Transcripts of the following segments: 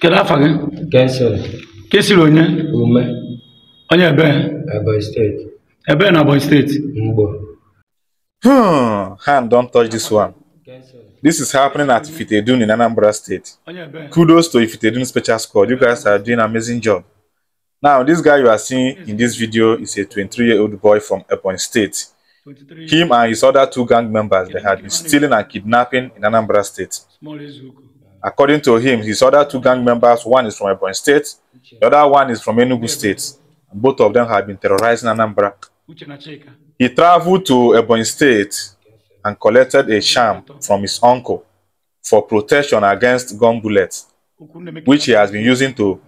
Kedu afa gị? Kenson. Ka esiri onye? Ume. Onye ebee? Ebonyi steeti. Ebee na Ebonyi State? Mgbo. Hmm, hand don touch this one. This is happening at Ifitedun in Anambra State. Kudos to Ifitedun Special Squad. You guys are doing an amazing job. Now, this guy you are seeing in this video is a 23-year-old boy from Ebonyi State. Him and his other two gang members, they had been stealing and kidnapping in Anambra State. According to him, his other two gang members, one is from Ebony State, the other one is from Enugu State. Both of them have been terrorizing Anambra. He traveled to Ebony State and collected a sham from his uncle for protection against gun bullets, which he has been using to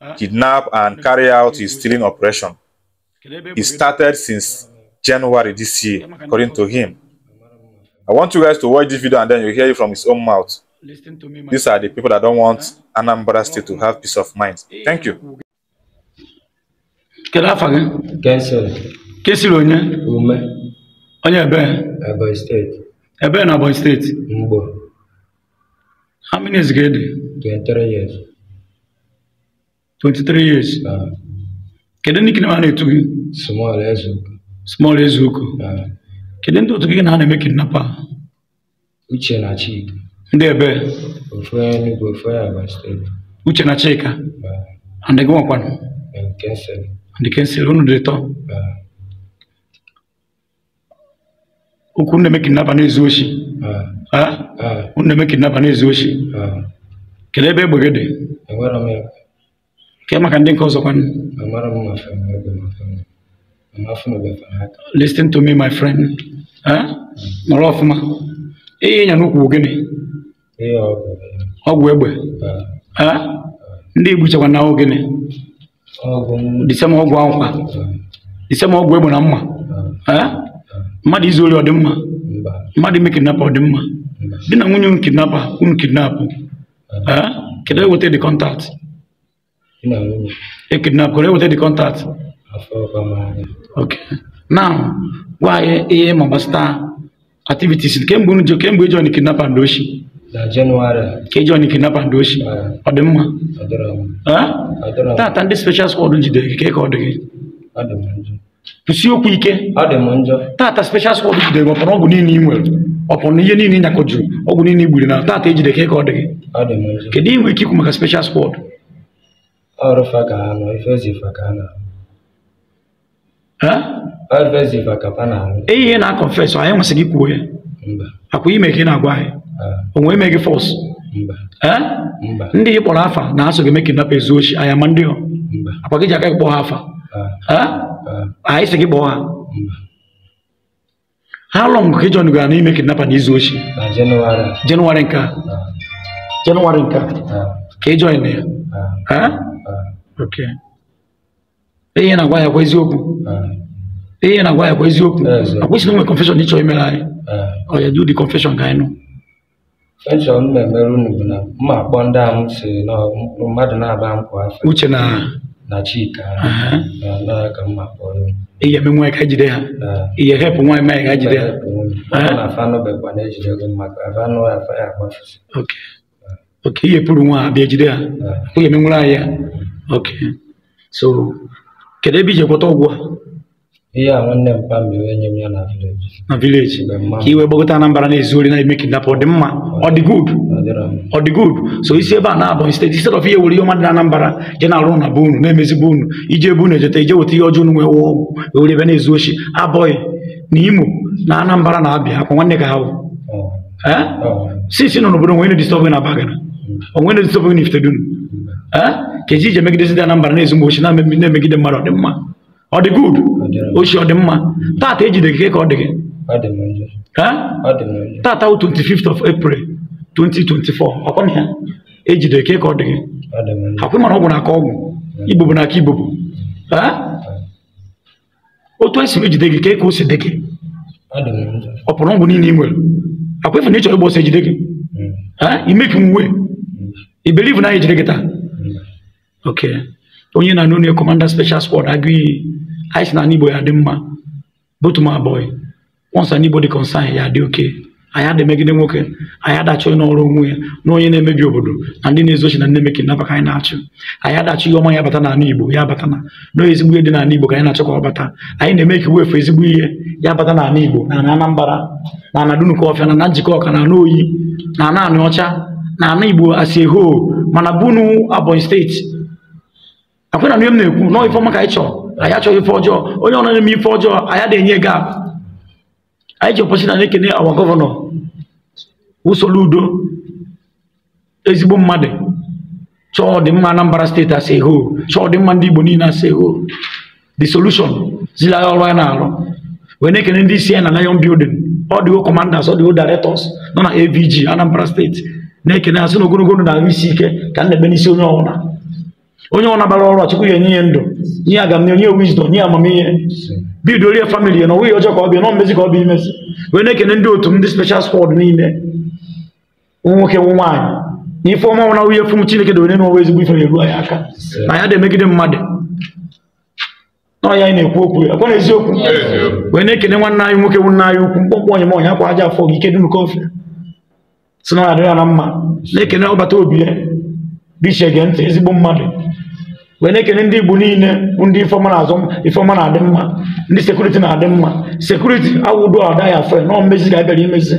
ah. kidnap and carry out his stealing operation. It started since January this year, according to him. I want you guys to watch this video and then you hear it from his own mouth. Listen to me, my These are the people that don't want Anambra State to have peace of mind. Thank you. Kedu afọ gị? Kesiri. Kesiri onye? Ume. Onye ebe? Ebonyi steeti. Ebe na Ebonyi steeti? Mgbo. How many years gị dị? 23 years. 23 years? Ah. Kedu ndị kidnap na-etu gị? Small Ezeuko. Small Ezeuko. Ah. Kedu ndị otu gị na ha na-eme kidnap a? Uche na Chika. ndị ebe Uche na Chika andị gị nwakwanụ andị kensịl dị tọ okwu nne meki naba na-ezu oshi nne meki naba na-ezu oshi kelee ebe egbe gị dị ke maka ndị nke ọzọ kwanụ listen to me my friend mara ọfụma ihe ịnya n'ukwu gịnị ọgwụ egbe ndị Igbo chekwa na gịnị disema ọgwụ akwụkwa disema ọgwụ egbe na mma mmadụ izu ori ọdịmma mmadụ ime kidnapa ọdịmma di na nwunye unu kidnapa unu kidnapụ kedụ eweta dị kọntat e eweta dị kọntat na e e gwa anyị ihe ma gbasata activities kemgbe unu kemgbe ijọ na kidnapa ndị oshi na Jenụwarị. Ka John kidnapper Ndochi. Ọ dị mma? Ọ dịrọ mma. special jide gị ka ọ dị gị. Ọ okwu ike. dị m njọ. Taata special squad jide gị ọgwụ niile ị nwere. Ọpụrụ ihe niile ị ọgwụ niile i na taata ejide ka ọ dị gị. Ọ dị m Kedu ike maka special squad? Ọrụ fa ka ha nọ, fa ka ha na-arụ. na-akọfes, na-agwa onwe emeghị fọs ndị ị kpọrọ afa na-asụ gị meke napa ezu ochi anya ma ndị akwa gị ji aka gị kpọọ ha afa anyị sị gị kpọọ ha ha lọng ka ịjọ gara n'ime kidnapa na izu ochi jenụwarị nke a jenụwarị nke a ka ị join ya ihe na-agwa ya kwa eziokwu ihe na-agwa ya kwa eziokwu akwụsịna nwe confession ịchọ imere anyị ọ ya do the confession ka anyị nụ Echọ m mmemme Rooney bụ na m akpọ ndị a m sị na mmadụ na-aba m afọ Uche na na Chika na ka m akpọ ihe eme nwa ka jide ha ihe hepụ nwa eme ka jide ha na afanụ bekwa na ejide gị maka afanụ ya afa ya agbafụsị oke ihe pụrụ nwa abịa jide ha onye eme nwere ahịa oke so kedu ebe ije kwọta ọgwụ iya ng'onne mpambi wenye na village na village kiwe bogota na mbarani zuri na make that for mma. Odi good Odi good so isi eba na abo. instead instead of ihe were ihe na anambra Jena alona bunu Nemezi bunu ije bunu Jete ije weta ihe ọjọọ nwe wụọ uli vene ebe na-ezu ochi abọghị na imo na anambra na abịa akwa nwanne ka ha bụ oh. eh? oh. Si nọ n'obodo nwere disturb na bagana onwere mm. disturb na ifte mm. eh? dunu ka eji ije megidezi dị anambra na-ezu mgbochi na-emegide mmadụ ọdịmma ọ dị good ochie ọ dị mma tata ejide gị ka ọ dị gị tata wụ 25th of April 2024 ọkwana ya ejide ke ka ọ dị gị akwụ mara ọgwụ n'aka ọgwụ igbo na-aka igbo bụ otu esi ejide gị ka e ka o si dị gị ọ pụrụ ọgwụ niile ị nwere akwa efu na ịchọrọ ịgba ọsọ ejide gị imeki nwe ibelivu na ejide gị taa hmm. okay onye na-anụ onye kọmanda special squad agụiyi iyi anyị si na Igbo ya dị mma both my boy once an Igbo dị concern ya dị oke anyị ada nwoke anyị adachọ n'ọrụ onwe ya na onye na-emebi obodo na ndị na-ezochi na nnemeki nnabaka anyị na-achụ anyị adachọ ihe ọma ya bata n'ala Igbo ya bata na nọọ ezigbo ihe dị n'ala Igbo ka anyị na-achọ ka ọ bata anyị na-eme ka wefu ezigbo ihe ya bata n'ala Igbo na ana Anambra na ana Dunukọfịa na na njikọ ọka na ana oyi na ana anị ọcha na ana Igbo asị hoo mana bunu Abonyi steeti akwena na m na-ekwu nọọ ife ọma ka anyị chọrọ anyị achọghị ife ọjọọ onye ọrụ na-eme ife ọjọọ anyị ada enye ga. anyị ji ọpọchi na na-ekene awa gọvanọ usoro udo ezigbo mmadụ chọọ ọdịmma Anambra steeti asị ho chọọ ọdịmma ndị Igbo niile asị ho the solution zila ya ọrụ ya na-arụ wee na-ekene ndị isi ya na Lion Building ọ dịwo kọmandas ọ dịwo directors nọ na AVG Anambra steeti na-ekene asị na ogologo na-ahụ isi ike ka m na-ebe n'isi onye ọbụla onye ọ nabara ọrụ ọchịkwa ya enye ndụ nye agam na onye wizdom nye amamihe bido rie famili ya na onwe ọjọọ ka ọ bịa nọ mmezi ka ọ bụ imezi wee na-ekene ndị otu ndị special squad niile nwoke nw nwanyị na ife ọma nwụna nwunye fum Chineke dowere n'onwe ezigbo ife na-eru anyị aka na ya dị emegide mmadụ nọ ya anyị na-ekwu okwu ya kwa na eziokwu wee na-ekene nwanne anyị nwoke nwanne anyị ukwu mkpọmkpọ onye m akwa aja afọ gị ike dum kofe si na ọ ya ya na mma na-ekene ọbata obi ya gị chege ntị ezigbo mmadụ wee na-ekene ndị Igbo niile bụ ndị ifeọma na-azụ na-adị mma ndị sekuriti na-adị mma sekuriti awụdo adaghị afọ nọ mmezi ga abịara imezi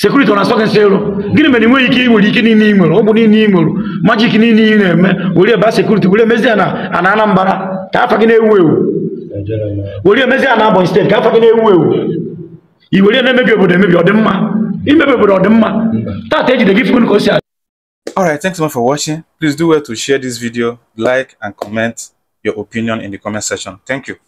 sekuriti ọ na-asọ gị nsị ero gịnị mere nweghị ike nwere ike niile ị ọ bụ niile ị majik niile ị na-eme were ebe a sekuriti were emezi na ana Anambra ka afa gị na-ewu ewu were ka afa gị na-ewu ewu i were obodo emebi obodo tata ejide gị all right thanks so much for watching please do well to share this video like and comment your opinion in the comment section thank you